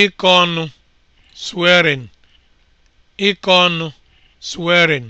Ịkọ ọnụ (swearing), Ịkọ ọnụ (swearing)